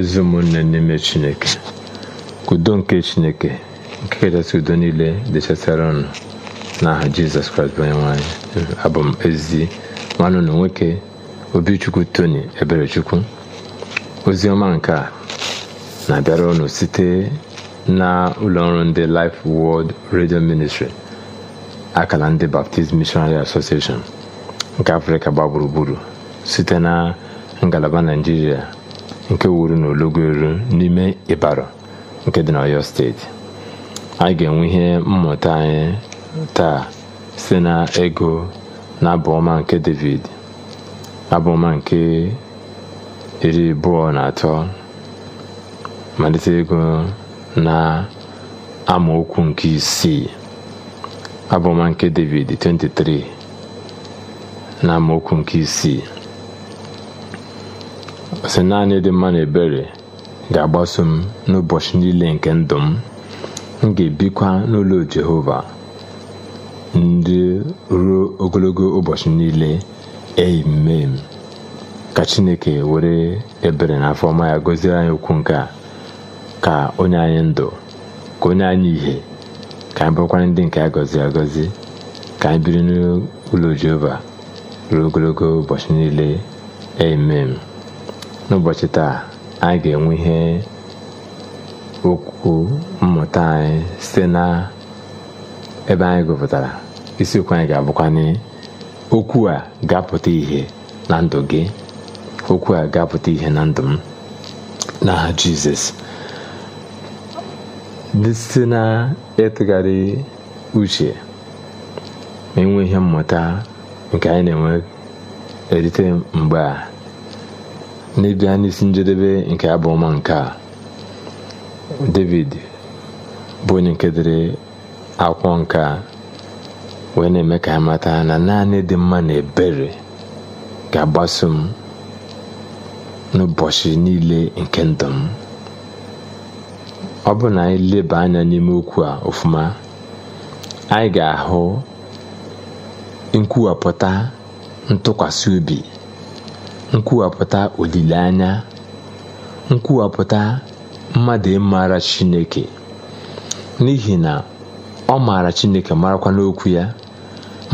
ezi ụmụnne n'ime chineke ka udo nke chineke nke kachasị udo niile dịchasịara ọnụ n'aha jizọs kraịst bụ onye nwanyị abụ m ezi nwanne nwoke obichukwu tony eberechukwu ozi ọma nke a na-abịara ọnụ site na ụlọọrụ ndị Life World redio Ministry akara ndị Baptist Missionary Association nke Afrịka gba gburugburu site na ngalaba Naijiria nke wuru n'ologo elu n'ime ịbara nke dị na ọyọ steeti anyị ga-enwe ihe mmụta anyị taa site na ego na abụ nke david abụọma nke iri abụọ na atọ malite ego na amaokwu nke isii abụọma nke david 23 na amaokwu nke isii sị naanị dị mma na ebere ga-agbaso m n'ụbọchị niile nke ndụ m m ga-ebikwa n'ụlọ Jehova ndị ruo ogologo ụbọchị niile emem ka Chineke were ebere na afọ ọma ya gọzie anyị okwu nke a ka onye anyị ndụ ka onye anyị ìhè ka anyị bụrụkwara ndị nke a gọziri agọzi ka anyị biri n'ụlọ Jehova ruo ogologo ụbọchị niile emem n'ụbọchị taa anyị ga-enwe ihe okwu mmụta anyị site na ebe anyị gụpụtara isiokwu anyị ga-abụkwanye okwu a ga-apụta ihe na ndụ gị okwu a ga-apụta ihe na ndụ m n'aha jizọs site na ịtụgharị uche ma enwe ihe mmụta nke anyị na-enwe erite mgbe a n'ebi anyị isi njedebe nke abụọma nke a david bụ onye nke akwọ akwụkwọ nke a wee na-eme ka ha mata na naanị dị mma na ebere ga-agbaso m n'ụbọchị niile nke ndụ m ọ bụ na anyị leba anya n'ime okwu a ofuma anyị ga-ahụ nkwuwapụta ntụkwasị obi nkwuwapụta olileanya nkwuwapụta mmadụ ịmara chineke n'ihi na ọ maara chineke marakwa n'okwu ya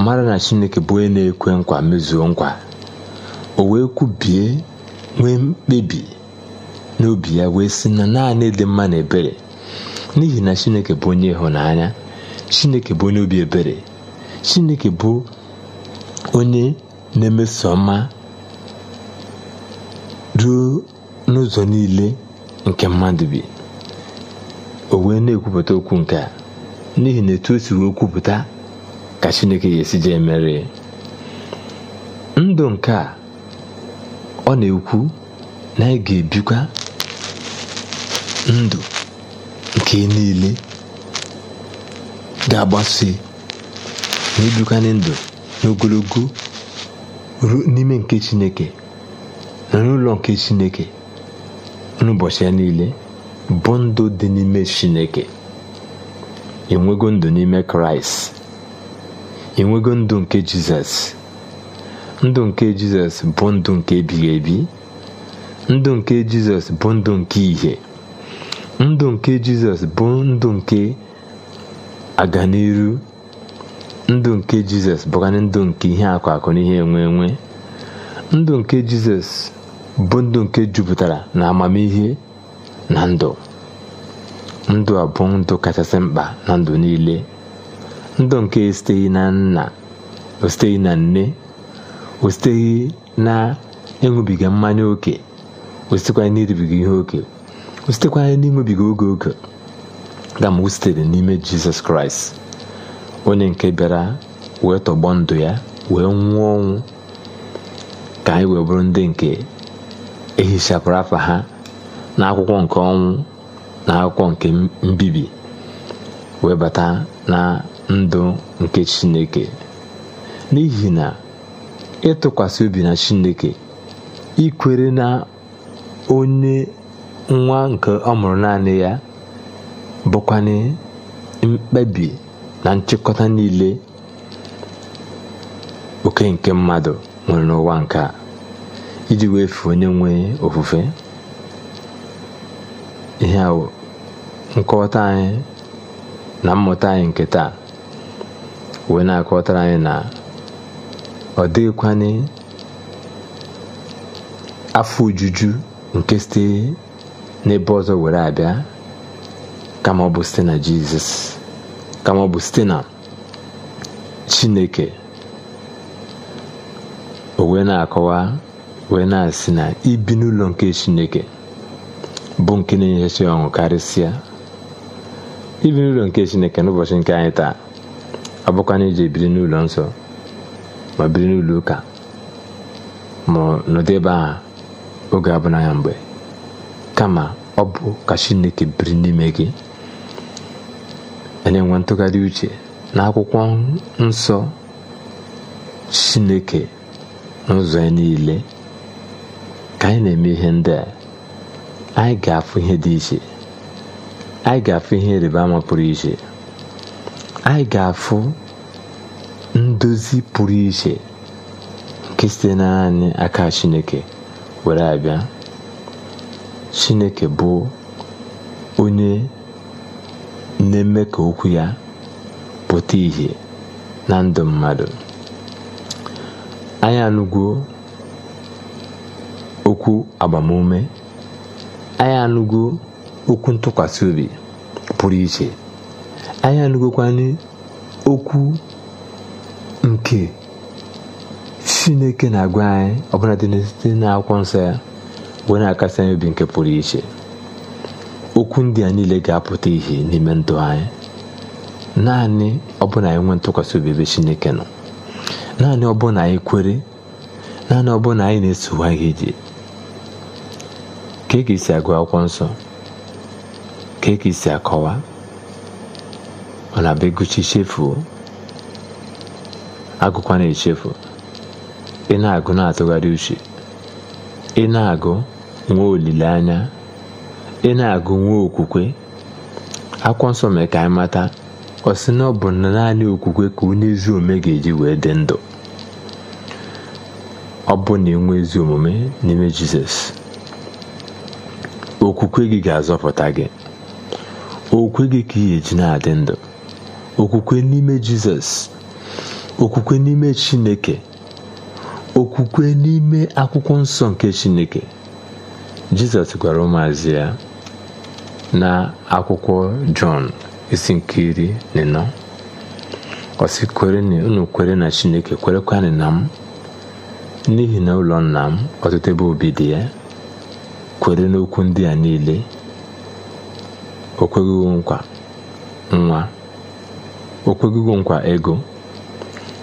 mara na chineke bụ onye na-ekwe nkwa mezuo nkwa o wee kwubie nwee mkpebi n'obi ya wee si na naanị dị mma na ebere n'ihi na chineke bụ onye ịhụnanya chineke bụ onye obi ebere chineke bụ onye na-emeso mma. ruo n'ụzọ niile nke mmadụ bi o wee na-ekwupụta okwu nke a n'ihi na etu o si wee kwupụta ka chineke ga-esi jee mere ndụ nke a ọ na-ekwu na anyị ga-ebikwa ndụ nke niile ga-agbasi na ebikwa ndụ n'ogologo n'ime nke chineke nri ụlọ nke chineke n'ụbọchị ya niile bụ ndụ dị n'ime chineke enwego ndụ n'ime kraịst enwego ndụ nke jizọs ndụ nke jizọs bụ ndụ nke ebighị ebi ndụ nke jizọs bụ ndụ nke ìhè ndụ nke jizọs bụ ndụ nke aganiru ndụ nke jizọs bụkarị ndụ nke ihe akụ akụ na ihe enwe enwe ndụ nke jizọs bụ ndụ nke jupụtara na amamihe na ndụ ndụ a bụ ndụ kachasị mkpa na ndụ niile ndụ nke esiteghị na nna ositeghị na nne ositeghị na ịṅụbiga mmanya ókè ositekwa n'iribiga ihe ókè ositekwa n'ịṅụbiga oge oge dama o sitere n'ime jizọs kraịst onye nke bịara wee tọgbọ ndụ ya wee nwụọ ọnwụ ka anyị wee bụrụ ndị nke ehichapụrụ afa ha n'akwụkwọ nke ọnwụ na akwụkwọ nke mbibi webata na ndụ nke chineke n'ihi na ịtụkwasị obi na chineke ikwere na onye nwa nke ọ mụrụ naanị ya bụkwanye mkpebi na nchịkọta niile oke nke mmadụ nwere n'ụwa nke a iji wee wefuo onye nwe ofufe ihe a nkọwata anyị na mmụta anyị nke taa wee na-akọwatara anyị na ọ dịghịkwanị afọ ojuju nke site n'ebe ọzọ were abịa kama ọ bụ site na jizọs kama ọ bụ site na chineke o wee na-akọwa wee na-asị na ibi n'ụlọ nke chineke bụ nke na-enyechachi ọṅụ karịsịa ibi n'ụlọ nke chineke n'ụbọchị nke anyị taa na iji ebiri n'ụlọ nsọ ma biri n'ụlọ ụka ma nọdụ ebe aha oge abụna ya mgbe kama ọ bụ ka chineke biri n'ime gị na-enwe ntụgharị uche na akwụkwọ nsọ chineke n'ụzọ ya niile anyị na-eme ihe ndị a anyị ga-afụ ihe dị iche anyị ga-afụ ihe ịrịba ama pụrụ iche anyị ga-afụ ndozi pụrụ iche nke site naanị aka chineke were abịa chineke bụ onye na-eme ka okwu ya pụta ìhè na ndụ mmadụ anyị anụgwo okwu agbamume anyị anụgo okwu ntụkwasị obi pụrụ iche anyị anụgokwanye okwu nke chineke na-agwa anyị ọbụla dị site akwụkwọ nsọ ya wee na-akasị anyị obi nke pụrụ iche okwu ndị a niile ga-apụta ihe n'ime ndụ anyị naanị ọbụla anyị nwee ntụkwasị obi ebe chineke nọ naanị ọbụla anyị kwere naanị ọbụla anyị na-esogha ihe ije ka ị si agụ akwụkwọ nsọ ka ị si akọwa ọ na-abịa gụchi chefuo na echefu ị na-agụ na-atụgharị uche ị na-agụ nwee olileanya ị na-agụ nwa okwukwe akwụkwọ nsọ mere ka anyị mata ọ sị na ọ bụ naanị okwukwe ka onye ezi omume ga-eji wee dị ndụ ọ bụ na enwe ezi omume n'ime Jizọs okwukwe gị ga-azọpụta gị okwukwe gị ka ị eji na-adị ndụ okwukwe n'ime jizọs okwukwe n'ime chineke okwukwe n'ime akwụkwọ nsọ nke chineke jizọs gwara ụmụazị ya na akwụkwọ jọn isi nke iri na ịnọ ọ unu kwere na chineke kwerekwanụ na m n'ihi na ụlọ nna m ọtụtụ ebe obi dị ya kwere n'okwu ndị a niile okwegugu nkwa nwa okwegugu nkwa ego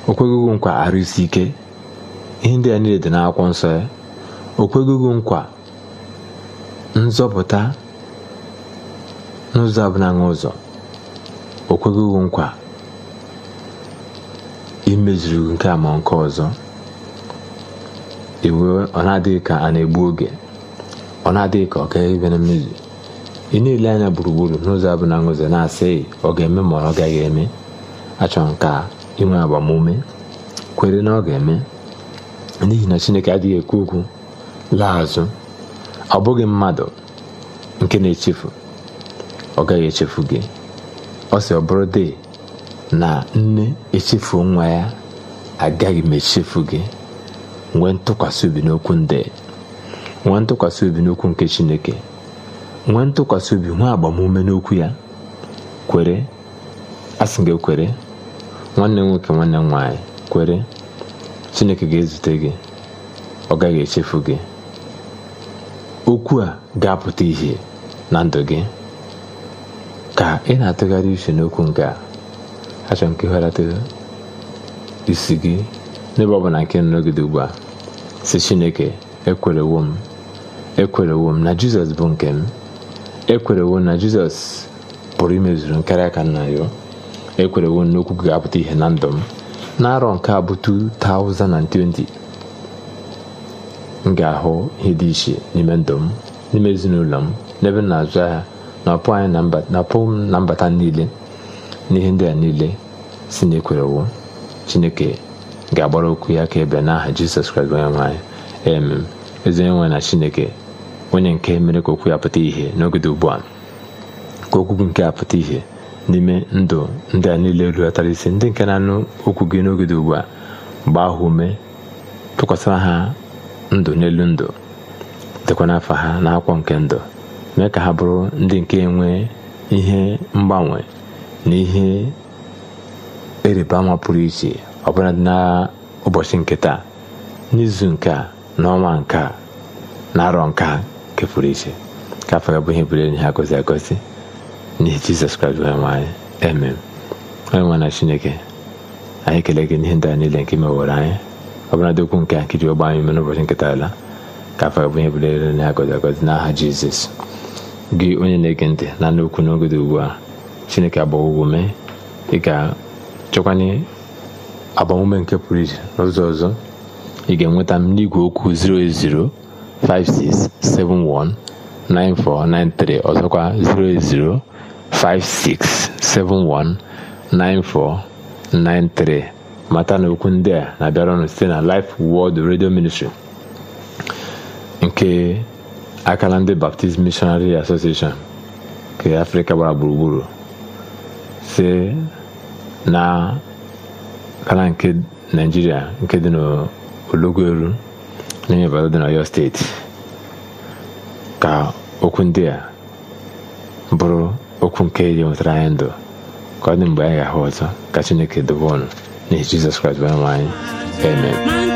okwegugu nkwa arụsi ike ihe ndị a niile dị n'akwụkwọ nsọ ya o nkwa nzọpụta n'ụzọ abụla n'ụzọ o kweghịwo nkwa imezuru nke a ma nke ọzọ iwe e ọ na-adịghị ka a na-egbu oge ọ na-adịghị ka ọ ga-ebe na mmezu ị na-ele anya gburugburu n'ụzọ abụ na ngụzi na-asịghị ọ ga-eme ma ọ gaghị eme achọrọ nke ka inwe agbamume kwere na ọ ga-eme n'ihi na chineke adịghị ekwu okwu laa azụ ọ bụghị mmadụ nke na-echefu ọ gaghị echefu gị ọ sị ọ bụrụ dị na nne echefu nwa ya agaghị m echefu gị nwee ntụkwasị obi n'okwu ndị nwa ntụkwasị obi n'okwu nke chineke nwa ntụkwasị obi nwa agbamume n'okwu ya kwere asị gị kwere nwanne nwoke nwanne m nwaanyị kwere chineke ga-ezute gị ọ gaghị echefu gị okwu a ga-apụta ihe na ndụ gị ka ị na-atụgharị uche n'okwu nke a achọ nke isi gị n'ebe ọ bụla nke nọgide ugbu a si chineke ekwerewo m ekwerewo m na jizọs bụ nke m ekwerewo na jizọs pụrụ imezuru nkarị aka nna ya ekwerewo okwu ga-apụta ihe na ndụ m n'arọ nke a bụ 2020 m ga-ahụ ihe dị iche n'ime ndụ m n'ime ezinụlọ m n'ebe m na-azụ ahịa na anyị na-apụ m na mbata niile n'ihe ndị a niile si na ekwerewo chineke ga-agbara okwu ya ka ebe n'aha jizọs kraịst onye nwe anyị emem ezi onye na chineke onye nke mere ka okwu ya pụta ihe n'oge dị ugbu a ka okwu gị nke a pụta ìhè n'ime ndụ ndị a niile rulatara isi ndị nke na-anụ okwu gị n'oge dị ugbu a gbaa ha ume tụkwasịra ha ndụ n'elu ndụ dịkwa n'afọ ha na akwọ nke ndụ mee ka ha bụrụ ndị nke nwee ihe mgbanwe na ihe ịrịba ama pụrụ iche ọbụla dị n'ụbọchị nke taa n'izu nke a n'ọnwa nke a na arọ nke a nke pụrụ iche ka afọ ya bụ ihe bụrụ enyi ha agọzi n'ihi jizọs kraịst bụ onyenwe anyị emem onyenwe na chineke anyị ekele gị n'ihe ndị a niile nke mewere anyị ọ bụla dị okwu nke a ji ọgba anyị mere n'ụbọchị nketa ala ka afọ ya bụ ihe bụrụ enyi ha gọzi agọzi n'aha jizọs gị onye na-ege ntị na anụ okwu n'oge dị ugbu a chineke agbawa ugwo mee ị ga-chekwanye agbamume nke pụrụ iche n'ụzọ ọzọ ị ga-enweta m n'igwe okwu 080 56719493 ọzọkwa 08056719493 mata na okwu ndị a na-abịara site na Life World Radio Ministry nke akala ndị Baptist Missionary Association nke Afrika gbara gburugburu si na akala nke naijiria nke dị n'Ologweru onye Ibadan dị n'Ọyọ steeti ka okwu ndị a bụrụ okwu nke ga nwetara anyị ndụ ka ọ mgbe anyị ga-ahụ ọzọ ka Chineke dobe ọnụ n'ihi Jizọs Kraịst bụ anyị amen